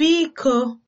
Biko